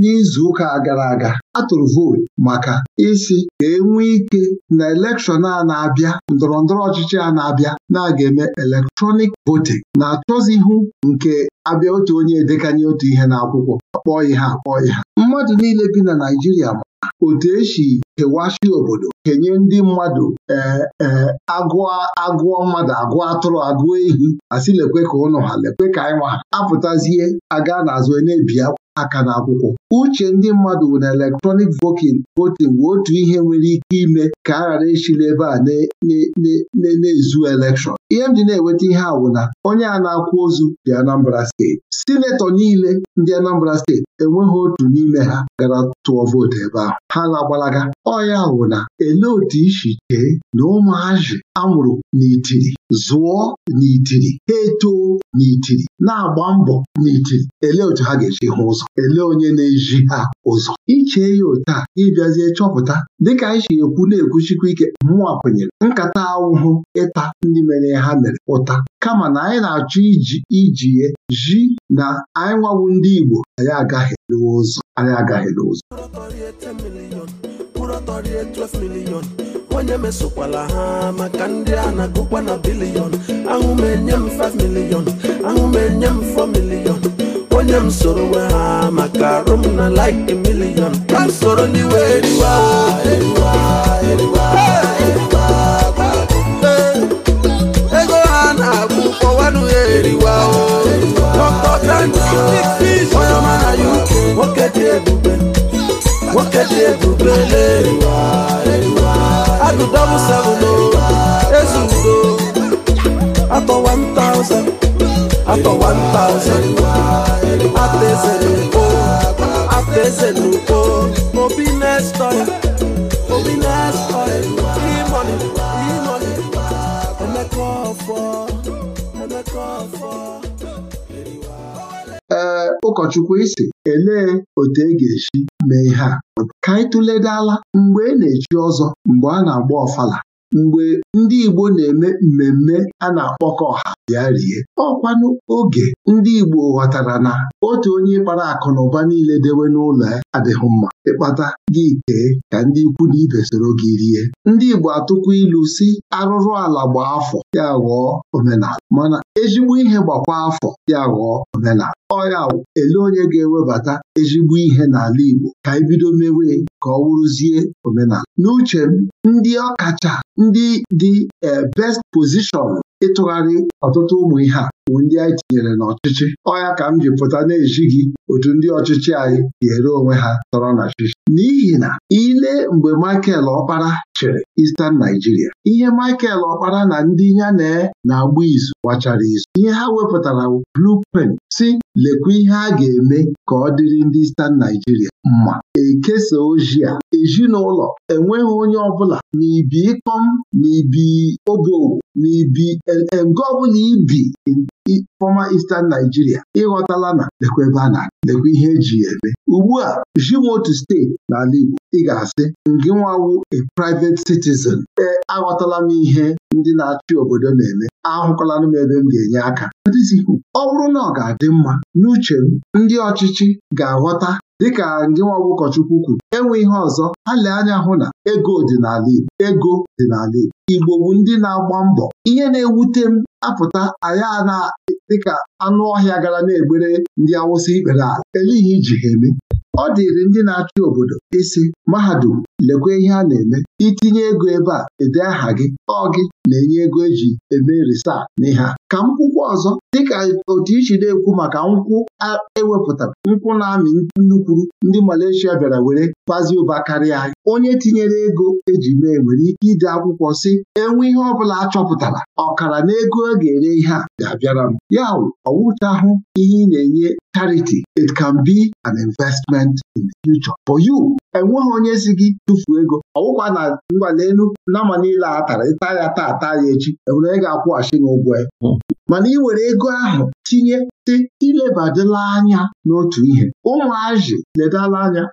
n'izu ụka gara aga atụrụ vootu maka isi ka enwee ike na elekshọn a na-abịa ndọrọ ndọrọ ọchịchị a na-abịa na-aga eme elektrọnik votin na ihu nke abịa otu onye edekanye otu ihe n'akwụkwọ ihe ihe mmadụ niile bi na Naịjirịa otu esi ewashi obodo kenye ndị mmadụ ee e, agụọ mmadụ agụọ atụrụ agụọ ehi asị lekwe ka ụnụ ha lekwe ka anyị nwa ha apụtazie aga n'azụ e na-ebi akwa aka na akwụkwọ. uche ndị mmadụ na elektrọnik voting bụ otu ihe nwere ike ime ka a ghara esi n'ebe a na-ezu elekshọn ihe m ji na-enweta ihe awụna na onye a na-akwụ ozu dị Anambra steeti sinetọ niile ndị Anambra steeti enweghị otu n'ime ha gara tụọ vootu ebe ahụ ha na-agbalaga ọya awụna na ele otu isi chee na ụmụazị amụrụ n'itiri zụọ n'itiri ha etoo n'itiri na-agba mbọ n'iti ele otu ha ga-eji hụ ụzọ ele onye na-eji ha ụzọ ichee ya otu a ịbịazie chọpụta dịka anyị si ekwu na-ekwuchikwa ike mmụọ kwenyere nkata ahụhụ ịta ndị mere ha mere ụta kama na anyị na-achọ iji iji ji na anyị nwawu ndị Igbo anyị agaghị n'ụzọ anyị agaghị n'ụzọ onye mesokwala ha maka ndị a na-agụkwa na bilion ahụ m enye m 5 milion ahụ m enye m 4 milion onye m soro we ha maka arụ na like a ka m soro n'iwe eriwa ego ha na ya eriwa ee ụkọchukwu isi elee otu e ga-esi mee ihe a ka anyị tụledala mgbe e na-echi ọzọ mgbe a na-agba ọfala mgbe ndị Igbo na-eme mmemme a na-akpọkọ ọha bịa rie ọkwanụ oge ndị Igbo ghọtara na otu onye kpara akụ na ụba niile dewe n'ụlọ ya adịghị mma ịkpata gị kee ka ndị ikwu na ibe soro gị rie ndị Igbo atụkwa ilu si arụrụ ala gbaa afọ ya ghọọ omenala mana ezigbo ihe gbakwa afọ ya ghọọ omenala ọya ele onye ga-ewebata ezigbo ihe n'ala Igbo ka ebido mewe ka ọ wụrụzie omenala n'uche m ndị ọkacha ndị dị eh, best position ịtụgharị ọtụtụ ụmụ ihe a bụ ndị anyị tinyere n'ọchịchị ọya ka m ji pụta na-ejighị otu ndị ọchịchị anyị ga-ere onwe ha tọrọ na chichi n'ihi na ile mgbe Michael Ọkpara chịrị Eastern Nigeria ihe Michael Ọkpara na ndị ya na na-agba izu wachara izu ihe ha wepụtara blueprint si lekwa ihe a ga-eme ka ọ dịrị ndị Eastern Nigeria mma ekesa ozi a ezinụlọ enweghị onye ọbụla na ibi ịkọm na ibi obowo na ibi ọbụla ibi fọma Eastern Naijiria. ịghọtala na lekwa ebe a na lekwa ihe eji ya eme ugbu a jimotu steeti n'ala Igbo ị ga-asị ngị nwawu a private citizen ee aghọtala m ihe ndị na-achị obodo na-eme Ahụkọla m ebe m ga-enye aka ọ bụrụ na ọ ga-adị mma n'uche ndị ọchịchị ga-aghọta Dịka gịnwa nwa ụkọchukwu kwuru enwe ihe ọzọ ha lee anya hụ na ego dị n'ala Igbo ego dị n'ala Igbo Igbo bụ ndị na-agba mbọ ihe na-ewute m apụta aya na dịka anụ ọhịa gara na-egbere ndị Awụsa ikpere ala eleghi iji ha eme ọ dịrị ndị na-achị obodo isi mahadum lekwa ihe a na-eme itinye ego ebe a ede aha gị ọ gị na-enye ego eji eme risaa n'ihe a. ka nkwụkwọ ọzọ dịka otu ichi na-ekwu maka nkwụ ewepụtara nkwụ na-amị nnukwuru ndị Malaysia bịara were kpazie ụba karịa anyị onye tinyere ego eji mee nwere ike ide akwụkwọ si enwe ihe ọ bụla chọpụtara ọkara na ego a e ga-ere ihe a ga-abịara m ya wụ ọwụchahụ ihe ị na-enye charity it can be an investment in the future for you enweghị onye si gị tụfuo ego ọwụkwa na ngwa n'elu nama niile a tara ịta ya taa taa ya echi enwere ị ga-akwụghachi n'ụgwọ ya mana ị were ego ahụ tinye sị ilebadịla anya n'otu ihe ụmụazị ledala anya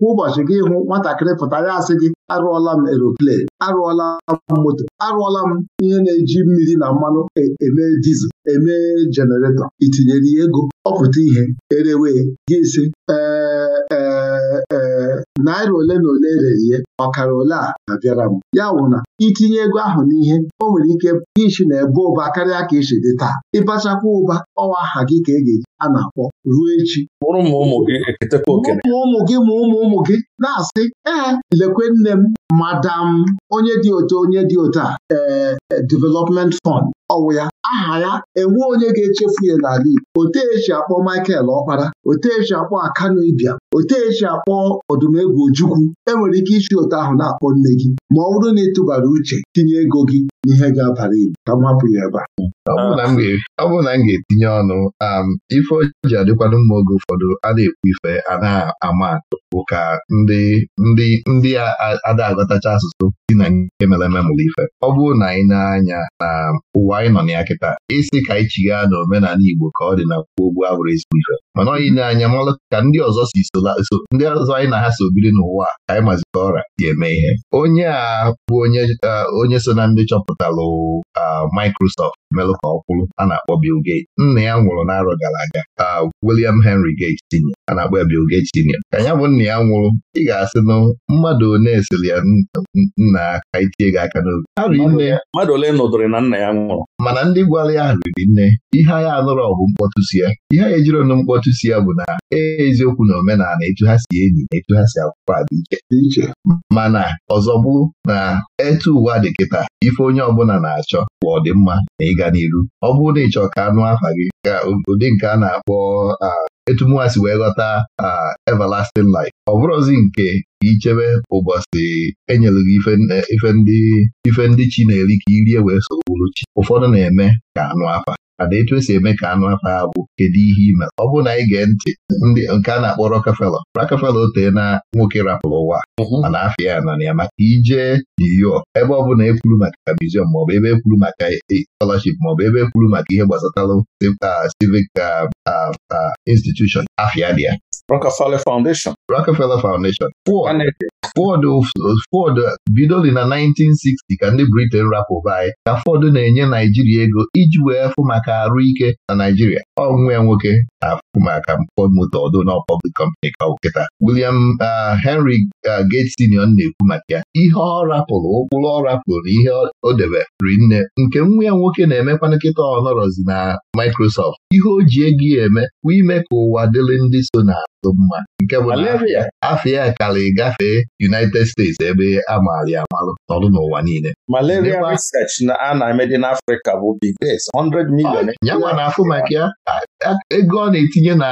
kwa ụbọchị gị hụ nwatakịrị pụtara asị gị arụọla m eroplane arụọla m moto arụọla m ihe na-eji mmiri na mmanụ e, eme dizel eme jeneretọ itinyere ya ego ọ pụta ihe erewe gị isi ee ee e, naira ole na ole rere ihe ọkara ole a abịara m ya bụ na itinye ego ahụ n'ihe o nwere ike ichi na ebe ụba karịa ka isi dị taa ịbachakwa ụba ọwa aha gị ka e ga-eji a na-akpọ ruo echi ụmụ gị ma ụmụ ụmụ gị na-asị ee lekwe nne m madam onye dị otu onye dị otu a ee e, development fund ọwụ ya aha ya enwe onye ga-echefu ya n'ala Igbo otu esi akpọ Michael Ọkpara otu esi akpọ Akanu Ibia otu esi akpọ ọdụm egwu Ojukwu enwere ike isi ụtọ ahụ na-akpọ nne gị ma ọ bụrụ na ị tụbara uche tinye ego gị n'ihe ga-abara ibu ka m hapụ ya ebe a ọ bụrụ na m ga-etinye ọnụ um, ife o ji adịkwanụ mma oge ụfọdụ a na-ekwu ife a na-ama atụ bụ ka ndị ndị ndị ada aghọtacha asụsụ dị na nke mere ememụrụ ife ọ bụrụ na anyị na-anya na um, ụwa anyị nọ na ya kịta isi e ka anyị chigha na omenala Igbo ka ọ dị na kwuo ogbu abụrụ ezigbo ife mana ọ yi na-anya malụ ka ndị ọzọ si ndị ọzọ anyị na ha so biri n'ụwa anyị maziri ọrịa ga eme ihe onye a bụ onye eh, so na ndị chọpụtalụ ah, Microsoft melụ ka ọ a na-akpọ Bill Gates nna ya nwụrụ n'arọ gara aga ka William Henry Gates tinye a na-akpọ ya Bill Gates Senior ka ya bụ nna ya nwụrụ ị ga-asị na mmadụ one esiri ya nna aka itie gị aka n'obi mmadụ ole nọdụrụ na nna ya nwụrụ mana ndị gwara ya riri nne ihe ya anụrụ ọgụ mkpọtụ si ya ihe ya ejiri ọnụ mkpọtụ si ya bụ na e, eziokwu na omenala etu ha si enyi na etu ha si akwụkwọ a dị iche mana ọzọ bụrụ na etu ụwa dị kịta ife onye ọbụla na-achọ bụ ọdịmma na ịga n'iru ọ bụrụ na ị chọọ ka anụ afa gị ka ụdị nke a na-akpọ etumụwa wee ghọta everlasting life ọ bụrụzi nke ichebe ụbọchị enyere gị ife ndị chi na-eri ka irie wee sogburu chi ụfọdụ na-eme ka anụ afa mana etu esi eme ka anụ afọ ha bụ kedu ihe ime ọ bụrụ na anyị gee ntị ndị nke a na-akpọ Rockefeller Rockefeller otee na nwoke rapụrụ ụwa mhm. mana afia ya nọ na ya maka ije New York ebe ọ bụla ekwuru maka museum maọbụ ebe ekwuru maka e, scholarship maọbụ ebe ekwuru maka ihe gbasatara civic ah, ah, ah, institution afia dị ya Rockefeller Foundation Rockefeller Foundation Ford bidoli na 1960 ka ndị Britain rapụba anyị ka Ford na-enye Naijiria ego iji wee fụ maka arụ ike na Naijiria ya nwoke na-afụ maka Ford Motor ọdụ na public company ka nkịta William uh, Henry uh, Gates Senior na-ekwu maka ya ihe ọ rapụrụ ụkpụrụ ọ rapụrụ na ihe o deberi nne nke nwa ya nwoke na-emekwa nkịta ọnọrọzi na Microsoft ihe o ji ego ya eme bụ ime ka ụwa dịrị ndị so na-atụ mma nke bụ afọ ya gafee United States ebe a maara ya amalụ n'ọrụ n'ụwa niile malaria research na a na-eme n'Africa bụ big days 100 million nyanwa ah, na afọ maka ya ego ọ na-etinye na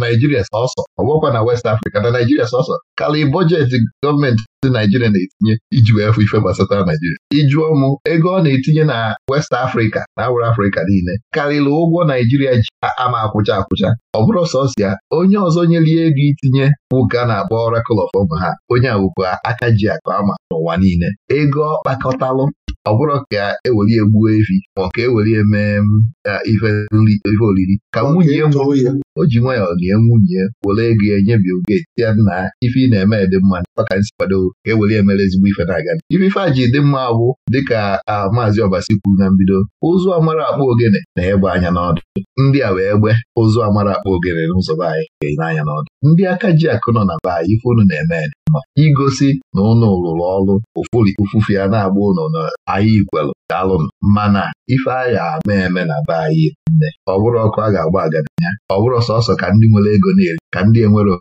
Naijiria sọsọ ọ na West Africa na Naijiria sọsọ karị bọjetị gọọmenti dị Naijiria na-etinye iji wee fụ ife gbasata Naijiria ịjụọ mụ ego ọ na-etinye na West Africa na awụrụ Afrịka niile karịrị ụgwọ Naijiria ji ama akwụcha akwụcha ọ bụrụ sọsịa onye ọzọ nyelie ego itinye ụka na-akpọ Oracle of ha onye awụkwa aka ji akụ ama n'ụwa niile ego ọ kpakọtalụ ọ bụrụ ka ewere ya gbuo efi ma ọ ka ewere ya mee mm, ife olili ka nwunye o ji nwayọọ lie nwunye were ego ya nyebie oge ya na ife ị na-eme dị mma maka nsikwado ka e were ezigbo ife na-aga ife a ji dị mma bụ dịka maazị ọbasi kwuru na mbido ụzụ amara akpa ogene na-egbe anya n'ọdụ ndị a wee gbe ụzụ amara akpa ogene n'ụzọ be anyị n'ọdụ ndị aka ji akụ nọ na be anyị ife unu na-eme ma igosi na ụnụ rụrụ ọrụ ụfụri ụfufe ya na-agba ụnụ na ahịa ikwelu daalụ mana ife a ama eme na be anyị ọ bụrụ ọkụ a ga-agba agadi ya ọ bụrụ sọsọ ka ndị nwere ego na ka ndị enwere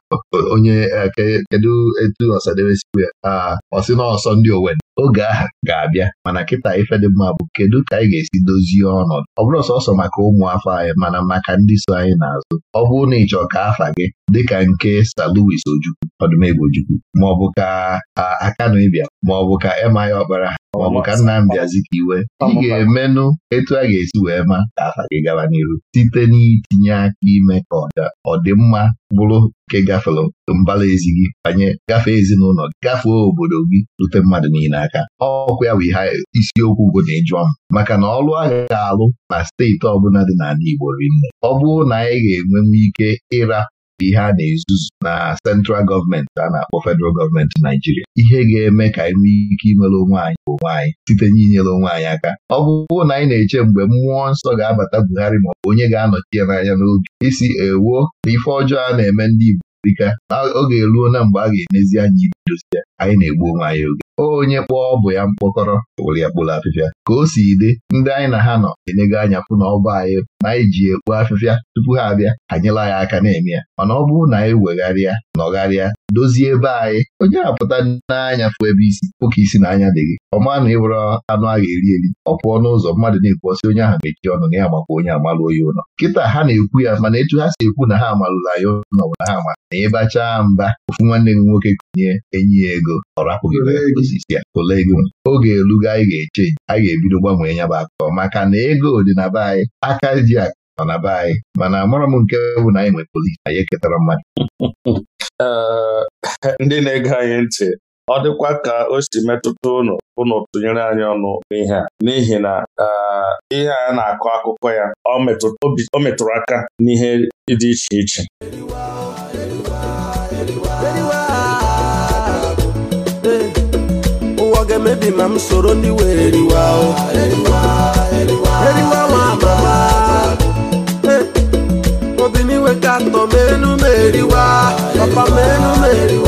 onye eh, kedu etu ọsadebe sikwu ya ah, ọ sị na ọsọ ndị owen oge aha ga-abịa mana kịta ifedị mma bụ kedu ka anyị ga-esi dozie ọnọdụ ọ bụrụ sọsọ maka ụmụafọ anyị mana maka ndị so anyị n'azụ ọ bụrụ na ịchọ ka afa gị dịka nke Sir Louis Ojukwu Ọdụmegwu maọbụ ka Akanu ịbịa maọbụ ka Emma ya Ọkpara maọbụ ka Nnamdi Azikiwe ị ga-emenụ etu a ga-esi wee ma ka afa gị gaba n'iru site n'itinye aka ime ka ọdịmma bụrụ nke gafere mbala ezi gị banye gafee ezinụlọ gafee obodo gị rute mmadụ niile aka ọkụ ya bụ ihe isiokwu bụ na ịjụọ m maka na ọrụ a ga-alụ na steeti ọbụla dị n'ala Igbo rinne ọ bụrụ na anyị ga-enwe ike ịra ihe a na-ezuzu na central gọọmenti a na-akpọ federal gọọmenti Naijiria ihe ga-eme ka anyị nwee ike imere onwe anyị bụ onwe anyị site n'inyere onwe anyị aka ọ na anyị na-eche mgbe mmụọ nsọ ga-abata Buhari ma ọ bụ onye ga-anọchi ya n'anya n'oge isi ewuo na ife ọjọọ a na-eme ndị Igbo ọ oge eruo na mgbe a ga-emezi anya ibe dozie anyị na-egbu onwe anyị oge onye kpọọ bụ ya mkpọkọrọ were ya kpụrụ afịfịa ka o si dị ndị anyị na ha nọ enyego anya fụ na ọba anyị na anyị ji ekpu afịfịa tupu ha abịa ha ya aka na-eme ya mana ọ bụrụ na anyị wegharịa nọgharịa dozie ebe anyị onye apụta n'anya fụ ebe isi ụka isi na anya dị gị ọma na ịwere anụ a ga-eri eri ọ pụọ n'ụzọ mmadụ na-ekwu ọsị onye ahụ mechie ọnụ na ya makwa onye amalụ onye ụlọ kịta ha na-ekwu ya mana etu ha si ekwu na ha amalụla ya ụlọ bụ na ha ama na ịbachaa mba ofu nwanne gị nwoke nye enyi ya ego ọ osisi ya ego oge elugo anyị ga-eche anyị ga-ebido gbanwee ya bụ akụkọ maka na ego dị na be anyị aka ji akụ nọ na be anyị mana amara m nke bụ na anyị nwere polisi anyị eketara mmadụ ndị na-ege anyị ntị ọ dịkwa ka o si metụta ụnụ ụnụ tụnyere anyị ọnụ n'ihe a n'ihi na ihe a na-akọ akụkọ ya o metụrụ aka n'ihe dị iche iche dị ma m soro ndị were riwa eriwa eh, ka atọ m enu eriwa papa m enu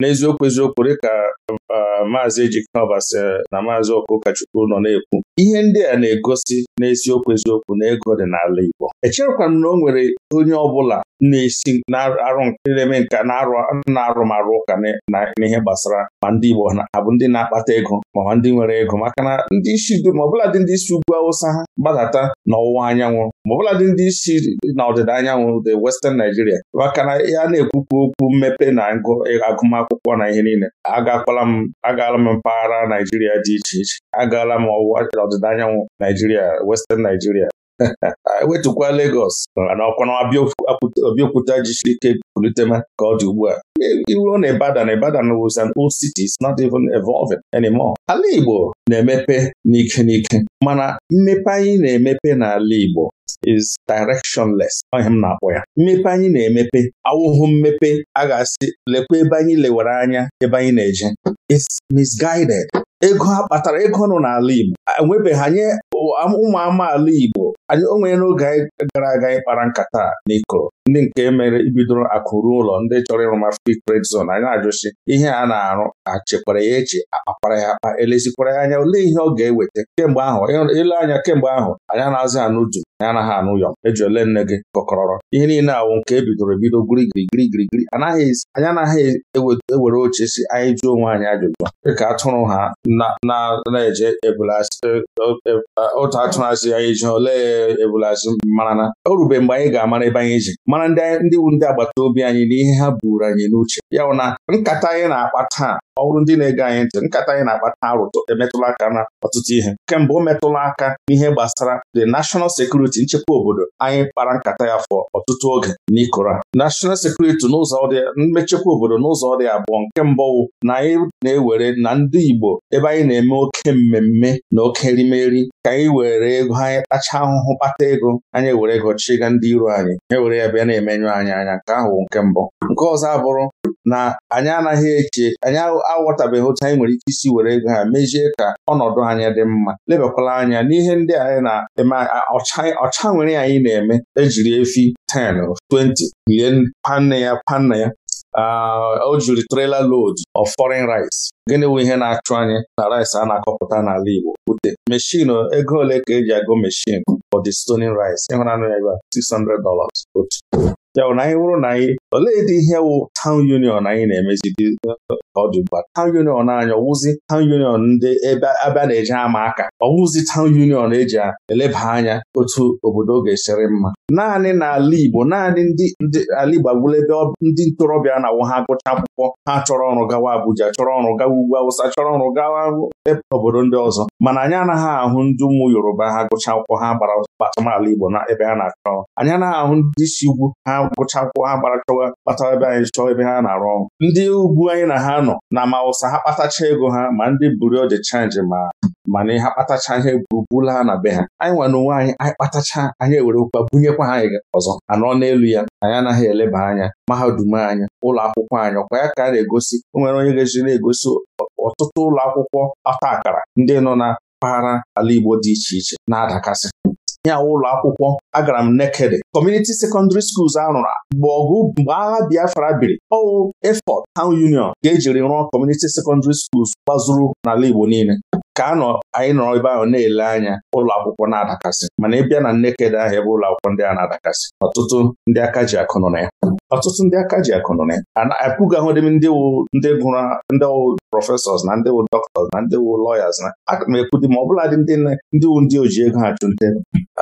n'eziokwu eziokwu um, maazị Ejiknọbas na maazị Ọkụkachukwu nọ na-ekwu ihe ndị a na-egosi n'eziokwu eziokwu na ego dị n'ala Igbo echerekwa na o nwere onye ọbụla na-esi na-arụ na-eme nka na marụ ụka n'ihe gbasara ma ndị Igbo ha bụ ndị na-akpata ego ma ndị nwere ego maka na ndị isi dum ọbụla dị ndị isi ugwu awụsa ha gbadata n'ọwụwa anyanwụ ma ọbụla dị ndị isi na ọdịda anyanwụ the westen Nigeria maka na ya na-ekwukwu okwu mmepe na agụmakwụkwọ na ihe niile agakwala m m agaala m mpaghara Naijiria dị iche iche agaala m ọwụwa ọdịda anyanwụ Naijiria Western Naijiria wetukwa Lagos na ọkwana Abiokuta jisiri ike politema ka ọ dị ugbu a e, iruo na Ibadan Ibadan was an old city is not even evolving anymore. Ala Igbo na-emepe n'ike n'ike mana mmepe anyị na-emepe n'ala Igbo is directionless ọhịa m na-akpọ ya mmepe anyị na-emepe awụhụ mmepe a ga-asị lekwa ebe anyị lewere anya ebe anyị na-eje it's misguided ego a kpatara ego nọ n'ala Igbo enwebeghị anyị ụmụ amaala Igbo o nwere n'oge anyị gara aga anyị kpara nkata n'ikoro ndị nke mere ibidoro akụrụ ụlọ ndị chọrọ ịrụma free trade zon anyị na-ajụsi ihe a na-arụ na-achịkwara ya echi, akpapara ya akpa elezikwara ya anya olee ihe ọ ga-eweta kemgbe ahụ ele anya kemgbe ahụ anyị anaghịzị anụ du anyị anaghị anụ yọm eji ole nne gị kọkọrọrọ ihe niile awụ nke ebidoro bidoro ebido girigirigirigirigiri anyị anaghị ewere oche si anyị jụọ onwe anyị ajụjụ dịka atụrụ ha na-eje e, e, e, atụrụ asị anyị ji olee ebulazụ mara mgbe anyị ga-amara ebe anyị ji mara ndị ndị wu ndị agbata obi anyị n'ihe ha buru anyị n'uche ya na nkata anyị na-akpa taa ọ bụrụ ndị na-ege anyị ntị nkata anyị na-akpata arụtụ emetụla aka na ọtụtụ ihe kemgbe o metụla aka n'ihe gbasara the national security nchekwa obodo anyị kpara nkata ya fọ ọtụtụ oge n'ikora national security n'ụzọ dị mmechekwa obodo n'ụzọ dị abụọ nke mbụ na anyị na-ewere na ndị Igbo ebe anyị na-eme oke mmemme na oke erimeri ka anyị were ego anyị kpachaa ahụhụ kpata ego anyị ewere ego chịga ndị iro anyị ewere ya bịa na-emenyụ anyị anya nke ahụ nke mbụ nke ọzọ abụrụ na anyị anaghị eche anyị aghọtabeghị otu anyị nwere ike isi were ego ha mezie ka ọnọdụ anya dị mma lebakwala anya n'ihe ndị anyị na-eme ọcha nwere anyị na-eme ejiri efi 10 20 lie panne ya panne ya o jiri lod load of foreign rice gịnị bụ ihe na-achụ anyị na rice a na-akọpụta n'ala Igbo ute meshin ego ole ka eji agụ meshin for the stoning rice ịhụra ya ebe 600 dollars otu ya bụ na anyị hụrụ na anyị olee dị ihe wụ tawn union anyị na-emezidi ọdụ ugbu a tawn union anyị ọwụzi tawn union ndị ebe abịa na-eji ama aka ọwụzi tawn union eji eleba anya otu obodo ga-esiri mma naanị n'ala Igbo naanị ndị ala Igbo agwụla ebe ndị ntorobịa na-awụ ha gụcha akwụkwọ ha chọrọ ọrụ gawa Abuja chọrọ ọrụ gawa ugwu Awụsa chọrọ ọrụ gawa obodo ndị ọzọ mana anyị anaghị ahụ ndị ụmụ Yoruba ha gụcha akwụkwọ ha gbara gbachamala Igbo na ebe ha na-achọ anyị anaghị ahụ ndị isi ugwu ha gụcha akwụkwọ ha gbara chọwa kpatara ebe anyị chọọ ebe ha na-arụ ọrụ ndị ugwu anyị na ha nọ na ma ụsa ha kpatacha ego ha ma ndị bureau de chanji ma mana ha kpatacha ihe gburugburu ha na be ha anyị nwa n'onwe anyị anyị kpatacha anyị ewerekwa bunyekwa ha anyị ọzọ anọ n'elu ya anyị anaghị eleba anya mahadum anyị ụlọ akwụkwọ anyị ọkwa ya ka a na-egosi o nwere onye ga na-egosi ọtụtụ ụlọ akwụkwọ ọta akara ndị nọ na mpaghara ala Igbo dị iche iche na-adakasị nyanwụ ụlọ akwụkwọ agara m nekede kọmuniti sekọndịrị skuls a mgbe ọgụ mgbe agha Biafra biri ọwụ efọt town union ga-ejiri rụọ kọmuniti sekọndịrị skuls gbazuru n'ala Igbo niile ka anọ anyị nọrọ ebe ahụ na-ele anya ụlọ akwụkwọ na-adakasị mana ị na Nnekedo ahụ ebe ụlọ akwụkwọ ndị a na-adakasị ọtụtụ ndị aka ji akụ na ya ọtụtụ ndị aka ji akụ na ya apụgahụdị m ndị wụ ndị gụrụ ndị wụ prọfesọs na ndị wụ dọktọs na ndị wụ lọyas na aga m ekwu dị ma ọ bụla ndị wụ ndị oji ego ha chụnte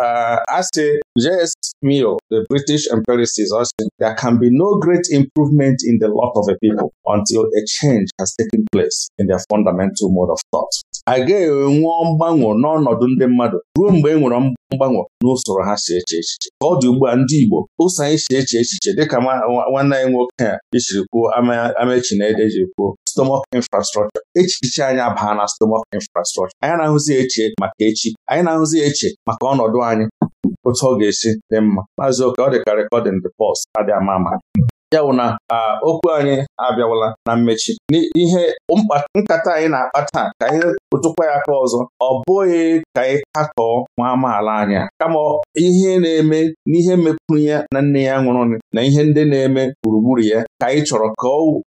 uh, a sị J.S. Mill, the British empiricist, said there can be no great improvement in the lot of a people until a change has taken place in their fundamental mode of thought. gaghị enwe mgbanwo n'ọnọdụ ndị mmadụ ruo mgbe e nwere mgbanwe n'usoro ha si eche echiche ka ọ dị ugbu a ndị Igbo ụsọ anyị si eche echiche dịka nwanne anyị nwoke a jiri kwuo amaechi na ede jiri kwuo stomach infrastructure echiche anyị abaa na stomach infrastructure anyị na-ahụzi eche maka echi anyị na-ahụzi eche maka ọnọdụ anyị otu ọ ga-esi dị mma maazị oke ọ dịka recording dị pulse adị ama ama ya na okwu anyị abịawala na mmechi n'ihe nkata anyị na-akpa taa ka anyị tụkwa ya aka ọzọ ọ bụghị ka anyị katọọ nwa amaala anya kama ihe na-eme n'ihe mepụrụ ya na nne ya nwụrụ na ihe ndị na-eme gburugburu ya ka anyị chọrọ ka ọ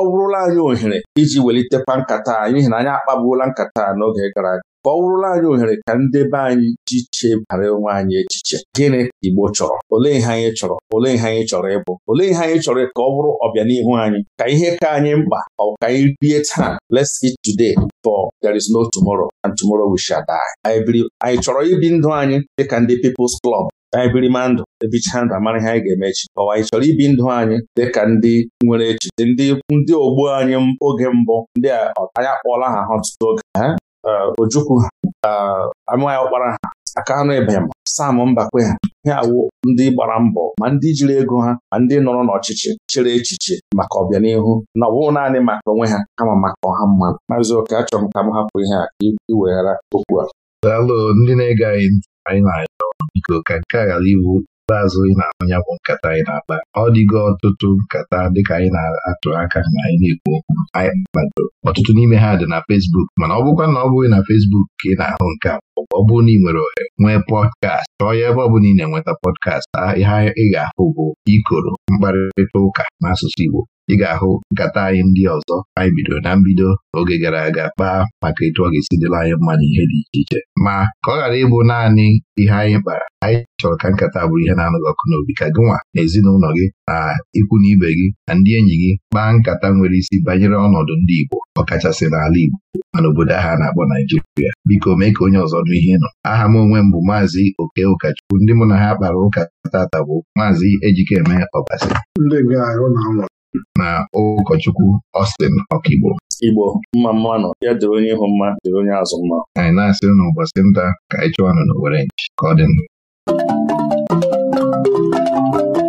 bụrụla anyị ohere iji welitekwa nkata n'ihi na anyị akpagbuola nkata n'oge gara aga ka ọ bụrụla anyị ohere ka ndị be anyị ji chebara onwe anyị echiche gịnị ka Igbo chọrọ olee ihe anyị chọrọ olee ihe anyị chọrọ ịbụ olee ihe anyị chọrọ ka ọ bụrụ ọbịanihu anyị ka ihe ka anyị mkpa ọ ka anyị rie taa let's eat today for there is no tomorrow and tomorrow we shall die anyị chọrọ ibi ndụ anyị dịka ndị People's Club anyị birima ndụ ebichaa ndụ amara ihe anyị ga-eme echi ọwa anyị chọrọ ibi ndụ anyị dịka ndị nwere echiche ndị ndị ogbo anyị oge mbụ ndị anyị akpọọla ha ha ọtụtụ oge ha Uh, Ojukwu ha uh, anụghị ọkpara ha aka anụ ịbanyam sam mbakwe ha ihe awụ ndị gbara mbọ ma ndị jiri ego ha ma ndị nọrọ n'ọchịchị chere echiche maka ọbịanihu na ọ bụghị naanị maka onwe ha kama maka ọha mmadụ maazị oke achọrọ m ka m hapụ ihe a iweghara okwu a daalụ ndị na-ege anyị anyị na biko ka nke a ghara iwu azụ ị na-anụ ya bụ nkata anyị na-akpa ọ dịgo ọtụtụ nkata dịka anyị na-atụ aka na anyị na-ekwu okwu ọtụtụ n'ime ha dị na fesbuk mana ọ bụkwa na ọ bụghị na fesbuk ka ị na-ahụ nke a ọ bụrụ na ị nwere ohere nwee pọdkast chọọ ya ebe ọ bụla ị na-enweta pọdkast ihe ị ga-ahụ bụ ikoro mkparịta ụka n'asụsụ Igbo ị ga-ahụ nkata anyị ndị ọzọ anyị bidoro na mbido oge gara aga kpaa maka etu ọ ga-esi dịla anyị mma na ihe dị iche iche ma ka ọ ghara ịbụ naanị ihe anyị kpara anyị chọrọ ka nkata bụrụ ihe na-anụghị ọkụ n'obi ka gịnwa na ezinụlọ gị na ikwu na ibe gị na ndị enyi gị kpaa nkata nwere isi banyere ọnọdụ ndị Igbo ọkachasị n'ala Igbo ma n'obodo ahụ a na-akpọ Naijiria biko mee ka onye ọzọ nụ ihe nọ aha m onwe m bụ maazị Oke Ụkachukwu ndị mụ na ha kpara ụka tata bụ maazị Ejikeme Ọbasi na ụkọchukwu Austin Ọkigbo Igbo mma mma nọ ya dịrị onye ịhụ mma dịrị onye azụ mma anyị na-asịrị na ụbọchị nta ka anyị chụwanụ n'Owerri ka ọ dị